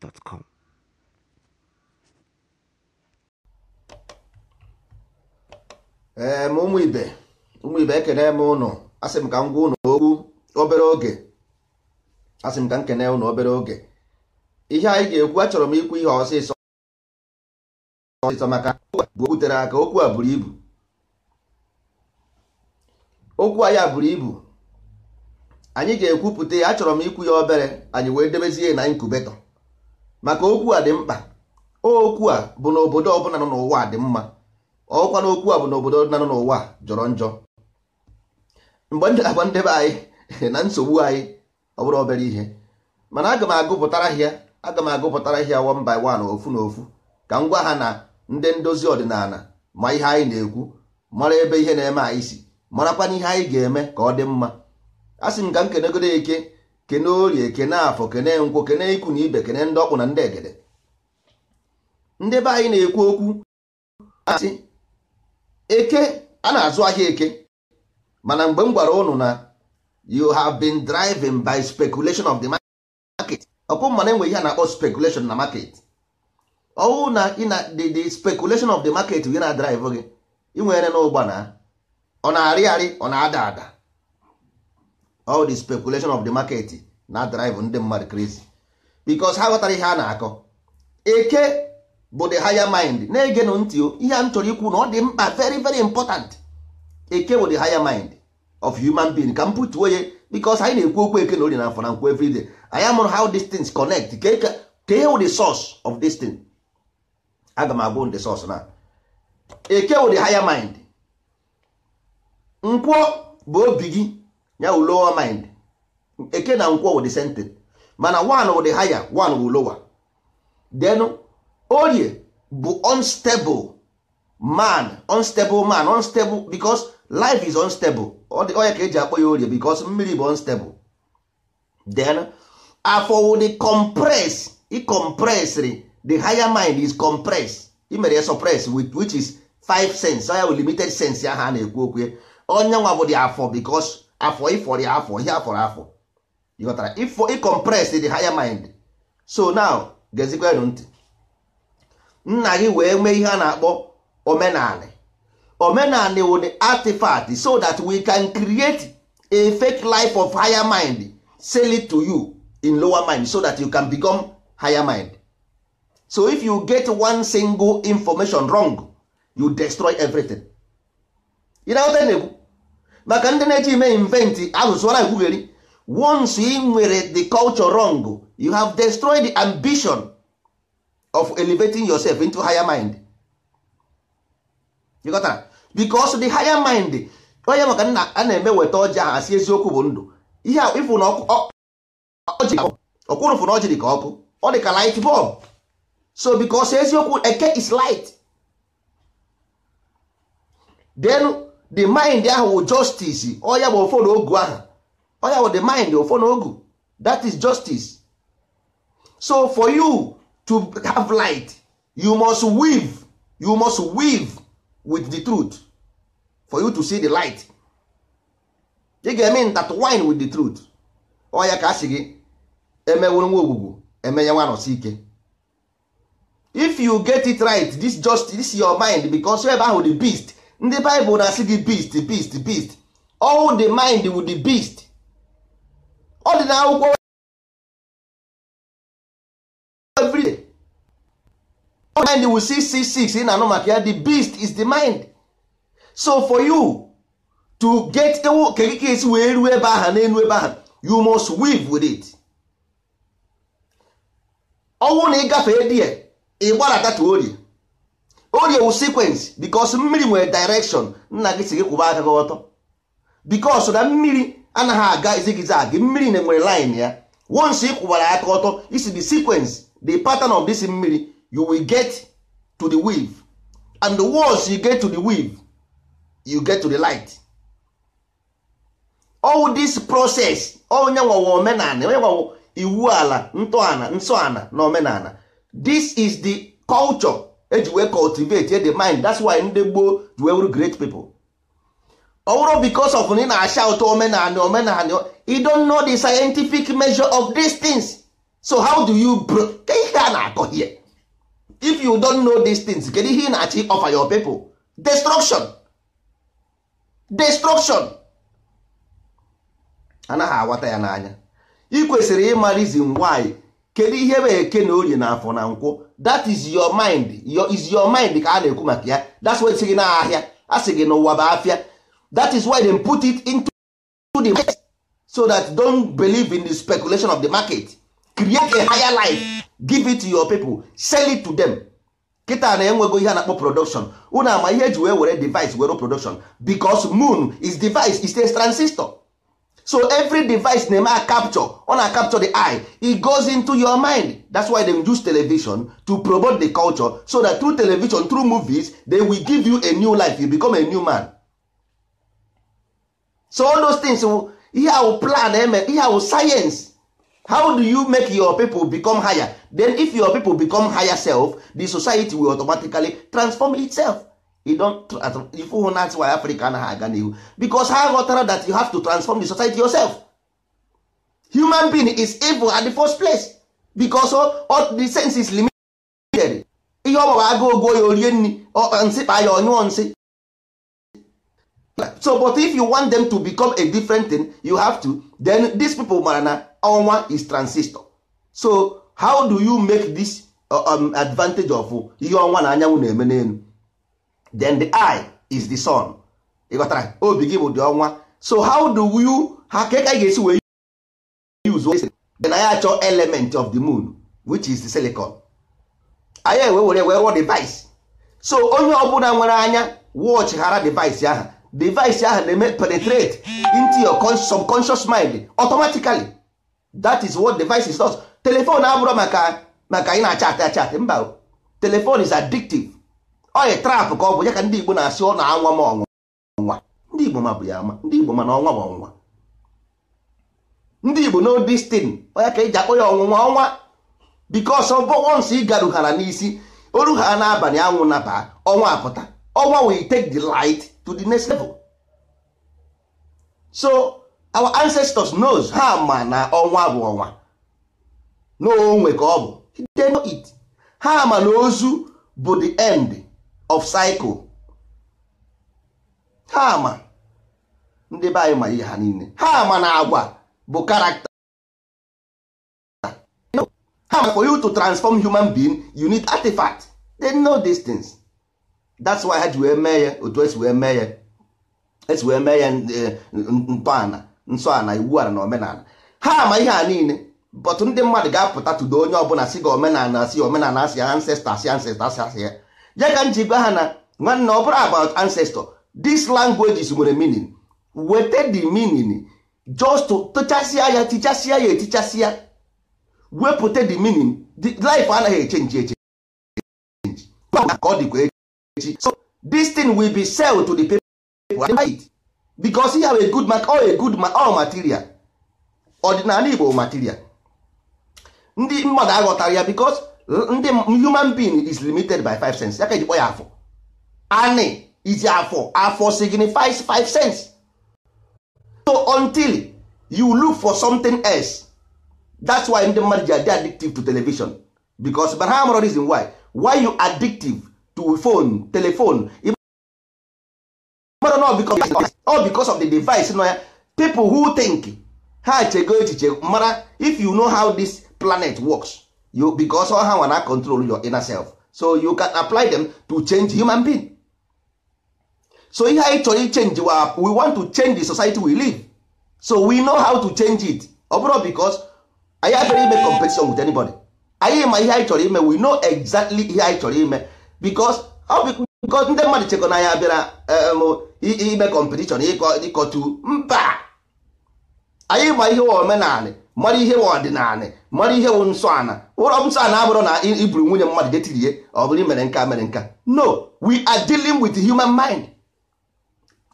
gmail.com ee ma ụmụ ibe ụmụ ibe ekene m ụnụ asị m ka m gwa ụnụ okwu obere oge asị m ka m kene ụnụ obere oge ihe anyị ga-ekwu achọrọ m ikwu ihe ọsịsọ ọsịsọ maka bụ butere aka okwu a buru ibu okwu anyị a buru ibu anyị ga-ekwupụta ya achọrọ m ikwu ya obere anyị wee debezie na inkubeto maka okwu a dị mkpa okwu a bụ na obodo ọbụla nọ n'ụwa dị mma ọkwa na okwu a bụ na obodo nọ n'ụwa jọrọ njọ mgbe ndị agba ndebe anyị na nsogbu anyị ọ bụrụ obere ihe mana aga m agụpụtara hịa aga m agụpụtara hịa one by one ofu na ofu ka m gwa ha na ndị ndozi ọdịnala ma ihe anyị na-ekwu mara ebe ihe na-eme anyị si marakwa ihe anyị ga-eme ka ọ dị mma a sị m ka m kenegodo eke kene orie kene afọ kene nkwo kene ikwu na ibe kene ndị ọkpụ na ndị egede ndị be anyị na-ekwu okwu asị eke a na-azụ ahịa eke mana mgbe m gwara ụnụ na you have been driving by speculation of the market ọkwụ mana enwe ihe a na-akpọ speculation na market ọwụ na ị na the speculation of the market gị na drive gị ị nwere na ọ na-arị arị ọ na-ada ada all the speculation of the market na drive ndị mmadụ crazy because ha ghọtara ihe a na-akọ eke bụ the higher mind na-egenụ ntị ihe a m chọrọ ikwu na ọ dị mkpa very very important eke bụ the higher mind of human being ka m pụtuo ya because anyị na-ekwu okwu eke na na afọ na nkwu everyday anyị amụrụ how these things connect ka the source of this thing aga m agwụ the source na eke wụ the higher mind bụ obi gị ya wu lower mind eke na nkwo wụ the mana one wụ the higher one wụ lower then orie bụ unstable man unstable man unstable because life is unstable onye ka eji akpọ ya orie because mmiri bụ unstable then afọ wụ the compress i compressri the higher mind is compress imere ya suppress which is five sense ya wụ limited sense ya ha na-ekwu okwu onye nwa bụ the afọ because afọ ịfọrọ afọ ihe afọrọ afọ ịghọtara ịfọ ịkọmpres the higher mind so now gezikwenụ ntị nna gị wee mee ihe a na-akpọ omenaale omenaale wo the artifact so that we can create a fake life of higher mind sell it to you in lower mind so that you can become higher mind so if you get one single information wrong you destroy everything. You know what I mean? maka ndị na-eji ime inventi asụsụ na ekwugheri once ị nwere the culture wrong you have destroyed the ambition of elevating yourself into higher mind you got because the higher mind onye maka nna a na-eme weta ọjị ahụ asị eziokwu bụ ndụ ihe ịfụ na ọkwụrụ na ọjị dị ka ọkụ ọ dị ka light bulb so because eziokwu eke is light then the mind ahụ wụ justice ọya bụ ofo ogu ahụ. ọya wụ the mind ofo ogu that is justice so for you to have light you must weave you must weave with the truth for you to see the light get mean that wine with the truth ọya ka a gị emewuru nwa ogwugwu emenye nwa nọsi ike if you get it right this justice this your mind because ebe ahụ the beast ndị baịbụl na-asị gị beast beast beast all the mind with the beast ọ dị na akwụkwọ everyday mind will see 666 ị na anọ maka ya the beast is the mind so for you to get ewu kekeke esi wee ruo ebe ahụ n'elu ebe aha you must weave with it ọnwụ na ịgafe die ị gbarata orie orie wu sekwensị bikos mmiri nwere direction nna gị si gị kwụba aka gị ọtọ bikos na mmiri anaghị aga zigzag mmiri na enwere line ya once ị kwụbara aka ọtọ isi the sequence the pattern of this mmiri you will get to the wave and once you get to the wave you get to the light all this process onye nwawa omenala onye nwawa iwu ala ntọala nsọ ala na omenala this is the culture eji wee cultivate the mind that's why ndị gboo ji wee wuru great people ọ bụrụ because of na ị na-acha ụtọ omenala omenala you don't know the scientific measure of these things so how do you ka ihe a na-akọ here if you don't know these things kedu ihe ị na-achọ offer your people destruction destruction anaghị awata ya n'anya ị kwesịrị ịma reason why kedu ihe bụ eke na orie na afọ na nkwụ that is your mind your is your mind ka a na-ekwu maka ya that's why sị gị na ahịa a sị gị n'ụwa bụ afịa that is why they put it into the market so that don't believe in the speculation of the market create a higher life give it to your people sell it to them kịta na enwego ihe a na-akpọ production unu ama ihe eji wee were device were production because moon is device is a transistor so every device na-eme a capture ọ na capture the eye e goes into your mind that's why dem use television to promote the culture so that through television through movies they will give you a new life you become a new man so all those things ihe oh, plan eme eh, ihe science how do you make your people become higher then if your people become higher self the society will automatically transform itself ife hụ ask why afrịka anaghị aga n'ihu because ha ghọtara that you have to transform the society yourself human being is evil at the first place because all the sense is limited ihe ọ gbara agụ ogo ya orie nri nsị kpa ya ọnyụọ nsị so but if you want them to become a different thing you have to then these people mara na ọnwa is transistor so how do you make this uh, um, advantage of ihe ọnwa na anyanwụ na-eme n'elu then the eye is the sun ịghọtara obi gị bụ dị ọnwa so how do you ha ka ka ga-esi wee use then anyị achọ element of the moon which is the silicon anyị ewe were wee rụọ device so onye ọbụla nwere anya watch ghara device ahụ device ahụ na-eme penetrate into your subconscious mind automatically that is what device is not telephone abụrụ maka maka ị na-achatị achatị mba Telephone is addictive oyi trap ka ọ bụ ya ka ndị Igbo na-asị ọ na-anwa m ọnwa ndị Igbo ma bụ ya ama ndị Igbo mana ọnwa ma ọnwa ndị Igbo no destin oya ka eji akpọ ya ọnwụnwa ọnwa because once ị garughara n'isi oru ha n'abalị anwụ naba ọnwa apụta ọnwa will take the light to the next level so our ancestors knows ha ma na ọnwa bụ ọnwa onwe ka ọ bụ they know it ha ma na ozu bụ the end of cycle ha ma ndị be anyị ma ihe ha niile ha ma na agwa bụ karakta ha ma for you to transform human being you need artifact they know these things that's why ha ji wee mee ya otu esi wee mee ya esi wee mee ya eh, ntọala nsọala iwu ala na omenala ha ma ihe a niile but ndị mmadụ ga-apụta tụdo onye ọbụla si gị omenala si omenala si ancestor si ancestor si ya ya ka m ji gwa ha na nwanne ọ bụrụ about ancestor these languages nwere meaning wete the meaning just tụchasịa ya tichasịa ya etichasịa wepụta the meaning the life anaghị echenji eche ka ọ dịkwa echi so this thing will be sell to the people and buy it because you have a good mark or a good mark or material ọdịnala Igbo material ndị mmadụ aghọtara ya because ndị human being is limited by five cents. ya ka eji kpọ ya afọ anị izi afọ afọ signifies five cents. so until you look for something else that's why ndị mmadụ ji adị addictive to television because but ha mụrụ reason why why you addictive to phone telephone all because of the device nọ ya people who think ha chego echiche mara if you know how this planet works you because all ha nwa control your inner self so you can apply them to change human being so ihe anyị chọrọ ichenji wa we want to change the society we live so we know how to change it ọ bụrụ because anyị abịara ime competition with anybody anyị ma ihe anyị chọrọ ime we know exactly ihe anyị chọrọ ime because ndị mmadụ chekọ na anyị abịara um, ime competition ịkọtu mba anyị ma ihe omenala mara ihe ọdịnala mara ihe wụ nsọ ana ụlọ nsọ ana abụrụ na iburu nwunye mmadụ detiri ihe ọ bụrụ mere nka mere nka no we are dealing with human mind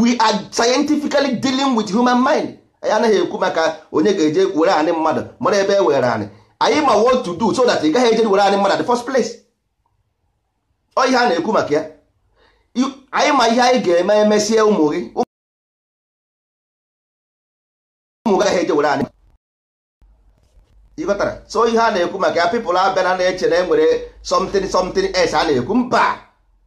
we are scientifically dealing with human mind anyị anaghị ekwu maka onye ga-eje were anị mmadụ mara ebe e were anị anyị ma what to do so that ị gaghị eje were anị mmadụ at the first place ọ ihe a na-ekwu maka ya anyị ma ihe anyị ga-eme emesie ụmụ gị ụmụ gaghị eje were anyị ịghọtara so ihe a na-ekwu maka ya pipụl abịa na na-eche na enwere something something else a na-ekwu mba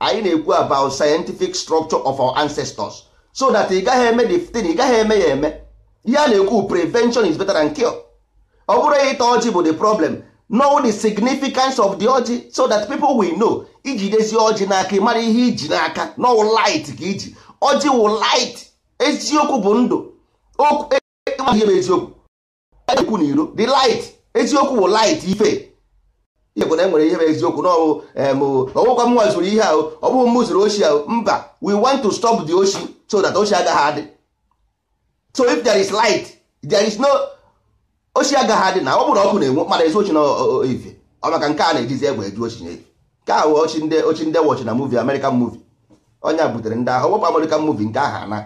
anyị na-ekwu about scientific structure of our ancestors so that ị gaghị eme the thing ị gaghị eme ya eme ihe a na-ekwu prevention is better than cure ọ bụrụ ịta ọjị bụ the problem know the significance of the ọjị so that people will know iji dezi ọjị n'aka ịmara ihe iji n'aka no light ka iji ọjị wụ light eziokwu bụ ndụ okwu. ma ihe bụ eziokwu ekwu na iro the light eziokwu bụ light ife ihe bụ na enwere ihe bụ eziokwu na ọwụkwa m zụrụ ihe ahụ ọ bụghị m zụrụ oshi ahụ mba we want to stop the oshi so that oshi agaghị adị so if there is light there is no oshi agaghị adị na ọ bụrụ ọkụ na-enwu mana ezi ochi na ife ọ maka nke a na-ejizi egbe eju ochi na ife nke a wee ochi ndị ochi ndị wọchi na movie American movie onye butere ndị ahụ ọgbọkpa American movie nke ahụ ana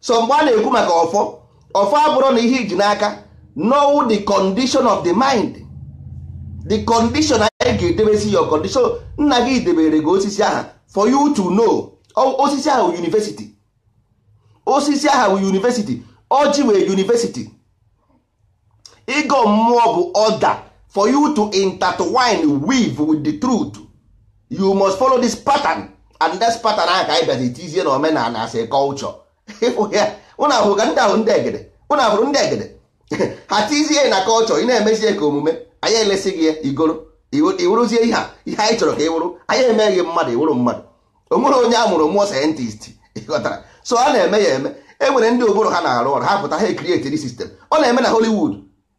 so mgbe a na-ekwu maka ọfọ ọfọ abụrụ na ihe iji n'aka know the condition of the mind the condition anyị ga-edebesi your condition nna gị debere gị osisi aha for you to know osisi aha university osisi aha university ọjị wee university ịgọ mmụọ bụ order for you to intertwine weave with the truth you must follow this pattern and this pattern ahụ ka anyị bịazi tizie na omenala as a culture ịfụ ya ụnụ ahụrụ ndị ahụ ndị egede ụnụ ahụrụ ndị egede ha tizie na kọlchọ ị na-emezie ka omume anyị elesi gị ya igoro ihe a ihe anyị chọrọ ka ị wụrụ anyị emeghị mmadụ iwụrụ mmadụ o nwere onye a mụrụ mmụọ sayentist ịghọtara so a na-eme ya eme e nwere ndị obodo ha na-arụ ọrụ ha pụta ha ekrietiri sistem ọ na-eme na Hollywood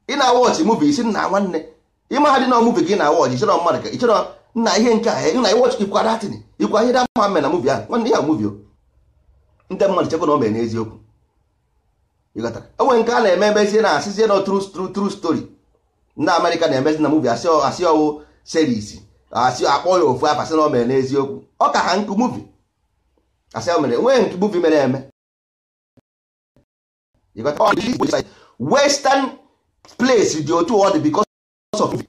ị na-awọchị mubi isi nna nwanne ịmahadị na muvi gị na-awọchị ịchọrọ mmadụ ka ịchọrọ nna ihe nke a na iwọchị ikwa datin ikwa ihe da ma na ahụ nwanne ya muvi o ndị mmadụ chekwa na o mere n'eziokwu enwe nke a na-eme emezie na asịzie na tru stori ndị Amerịka na-emezi na muvi asị ọwụ series asị akpọ ya ofu afasị na o mere n'eziokwu ọ ka ha nkụ muvi asị o mere enweghị nke muvi mere eme western place dị otu ọ dị because of movie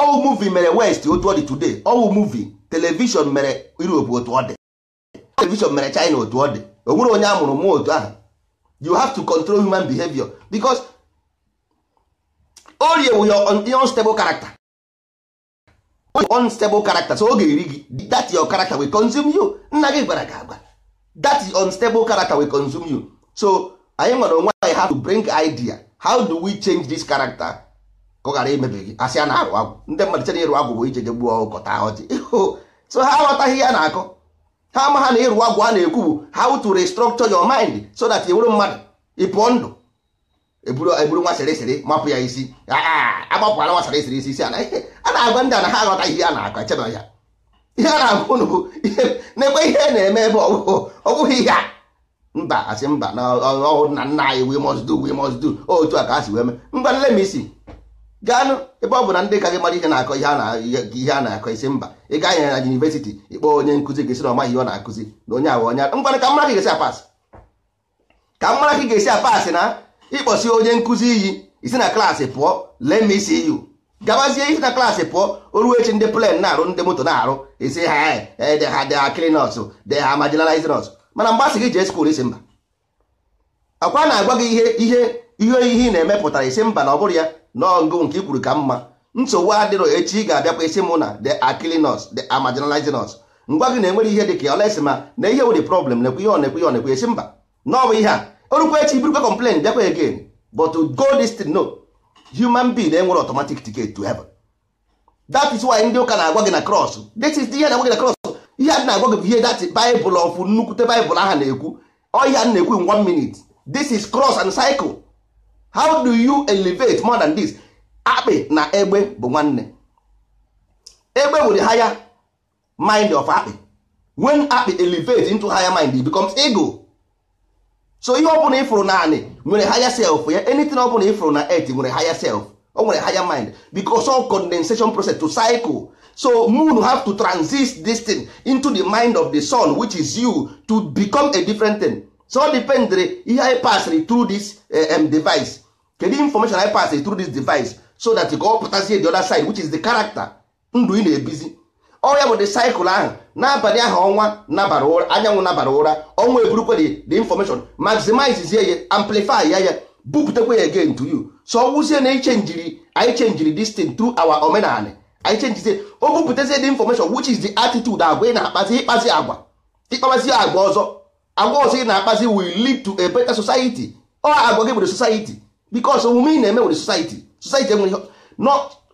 ọwụ muvi mere west otu ọ dị today ọwụ muvi televishọn mere Europe otu ọ dị television mere China otu ọ dị o nwere onye amụrụ mụọ otu ahụ you have to control human behavior because orie wu your unstable character unstable character so oge eri gị that your character will consume you nna gị gwara gị agba that unstable character will consume you so anyị nwere onwe anyị have to bring idea how do we change this character ka ọ ghara imebi gị asị a na-arụ agwụ ndị mmadụ chere ịrụ agwụ bụ ije je gbuo ọkọta ọjị so ha aghọtaghị ya na-akọ ha ama ha na ịrụ agwụ a na-ekwu bụ how to restructure your mind so that ị bụrụ mmadụ ị pụọ ndụ eburu e nwa sịrịsịrị mapụ ya isi agbapụla nwa sịrịsịrị isi isi ala a na-agwa ndị a na ha aghọta ihe a na-akọ echeba ya ihe a na-agwa unu bụ na n'ekwe ihe na-eme ebe ọ bụghị ihe a mba asị mba na ọhụrụ na nna anyị we must do we must do otu a ka a si wee mee ngwa m isi gaanụ ebe ọ bụ na ndị ka gị mara ihe na-akọ ihe a na-akọ isi mba ị gaa nyere na yunivesiti ịkpọ onye nkụzi gị sị na ọmaghị ihe ọ na-akụzi na onye awa onye ngwanụ ka mara gị ga-esi apasị ka mara gị ga-esi apasị na ịkpọsi onye nkụzi iyi isi na klaasị pụọ lee ma isi iyu gabazie isi na klaasị pụọ oruo echi ndị plen na-arụ ndị moto na-arụ isi ha de e, ha de ha klinọs de ha marginalizinọs mana mgbe asị gị jee skuul isi mba ọkwa na-agwa gị ihe ihe ihe ị na-emepụtara isi mba na ọ bụrụ ya nọọngụ nke ikwuru ka mma nsogbu adịrọ echi ị ga-abịakwa esi mụ na the akilinos the amaginalizinus ngwa gị na-enwere ihe dịka olesi ma na ihe wụdị problem nekwa ihe onekwa ihe onekwa esi mba n'ọbụ ihe a orukwa echi burukwa complain bịakwa again but to go this thing no human being enwere automatic ticket to heaven that is why ndị ụka na-agwa gị na cross this is ihe na-agwa gị na cross ihe a na-agwa gị bụ ihe that Bible of nnukwute Bible aha na-ekwu ọ ihe a na-ekwu in one minute this is cross and cycle how do you elevate more than this akpị na egbe bụ nwanne egbe bụ the higher mind of akpị when akpị elevate into higher mind it becomes ego so ihe ọbụla na naanị nwere higher self ya anything ọbụla na earth nwere higher self o nwere higher mind because of condensation process to cycle so moon have to transist this thing into the mind of the sun which is you to become a different thing so dependere ihe anyị pasịrị through this um, device kedu information I pass through this device so that ka ọ pụtazie the other side which is the character ndụ ị na-ebizi ọ ya bụ the cycle ahụ n'abalị ahụ ọnwa nabara ụra anyanwụ nabara ụra ọnwa eburukwe the information maximize ya amplify ya ya bupụtakwa ya again to you so ọ wụzie na ichenjiri anyị chenjiri this thing through our omenala anyị chenjizie o bupụtazie the information which is the attitude agwa ị na-akpazi ịkpazi agwa ịkpazi agwa ọzọ agwa ọzọ ị na-akpazi will lead to a better society ọ agwa gị bụ the society because omume ị na-eme were society society enweghị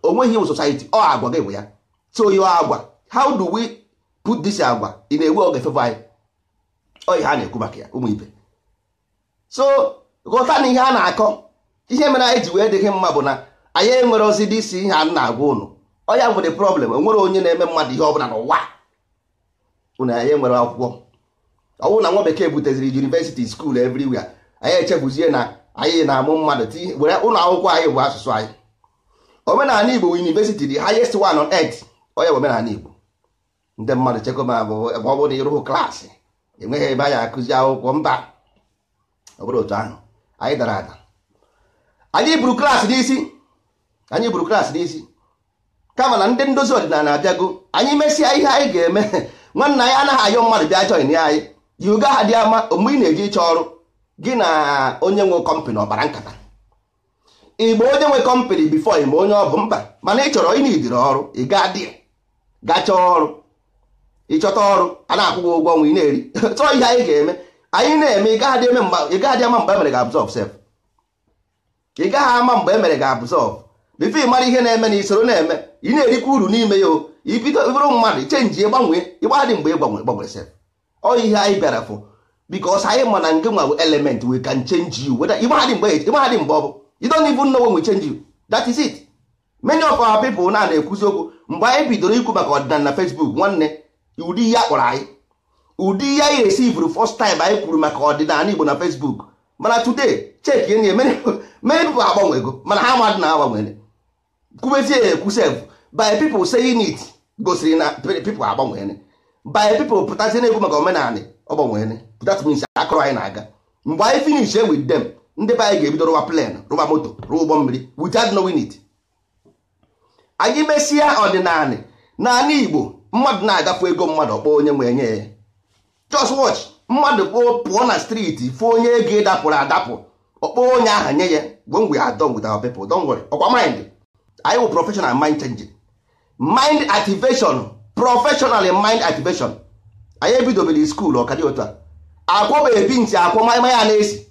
onweghị iwu society ọ agwa gị bụ ya so yo agwa how do we put this agwa ị na-ewe oge fevọ anyị oyi ha na-ekwu maka ya ụmụ ibe so ghọta na ihe a na-akọ ihe mere anyị ji wee dịghị mma bụ na anyị enwere ozi dị isi ihe a na-agwa ụnụ ọnya nwere problem enwere onye na-eme mmadụ ihe ọbụla n'ụwa ụnụ anyị enwere akwụkwọ ọnwụ na nwa bekee buteziri university school everywhere anyị echefuzie na anyị na-amụ mmadụ were ụlọ akwụkwọ anyị bụ asụsụ anyị omenala igbo university the highest one on earth onye bụ omenala igbo ndị mmadụ chekwa ma e ebe ọ bụrụ na ịrụhụ klaasị enweghị ebe anyị akụzi akwụkwọ mba ọ bụrụ otu ahụ anyị dara ada anyị buru klaasị n'isi anyị buru klaasị n'isi kama na ndị ndozi ọdịnala abịago anyị mesịa ihe anyị ga-eme nwanna anyị anaghị ayọ mmadụ bịa join anyị yiga ha dị ama mgbe ị na eji ịchọ ọrụ gị na onye nwe kọmpanị ọkpara nkata igbo onye nwe kọmpanị bifo ma onye ọ bụ mba mana ị chọrọ ịnidiri ọrụ ị gaa dị ọrụ ịchọta ọrụ a na-akwụ gị ụgwọ nwa ị na-eri chọọ ihe anyị ga-eme anyị na-eme ị gaghị ama mgbe emere gị sef ị gaghị ama mgbe emere ga absorb bifo ị mara ihe na-eme na isoro na-eme ị na-erikwa uru n'ime ya o ibido bụrụ mmadụ chenji gbanwee ịgbadị mgbe ị gbanwere gbanwere sef ọ ihe anyị bịara fụ because anyị ma na nke nwa element we can change you whether ịmaghadị mgbe ịmaghadị mgbe ọ bụ you don't even know we change you that is it many of our people na na-ekwuzi okwu oh, mgbe anyị bidoro ikwu maka ọdịnala na Facebook nwanne ụdị ihe akpọrọ anyị ụdị ihe anyị resivụrụ first time anyị kwuru maka ọdịnala Igbo na Facebook mana today cheki enyi many agbanwe agbanwego mana ha mmadụ na agbanwere kwubezie ekwu sef by people saying it gosiri na people agbanwere by people pụtazie na egwu maka omenala ọ gbanwere that means akọrọ anyị na-aga mgbe anyị finish wit dem ndị be anyị ga-ebido rụwa plan rụwa moto rụwa ụgbọ mmiri without knowing it anyị mesịa ọdịnala naanị igbo mmadụ na-agafe ego mmadụ ọkpọ onye nwe nye ya just watch mmadụ kpọọ pụọ na striti fụ onye ego ịdapụrụ adapụ ọkpọ onye aha nye ya gwongwe ya with our people don't worry ọkwa maịndị anyị bụ professional mind changing mind activation professional mind activation anyị ebidobere skuulu ọkadị dị a akwọ bụ ebi ntị akwọ maịmaya na-esi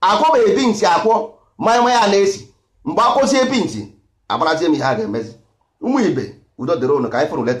akwọ bụ ebi ntị akwọ maịmaya na-esi mgbe akwọzi ebi ntị agbarazie m ihe a ga-emezi ụmụ ibe udo dịrị ụnụ ka anyị fụrụ leta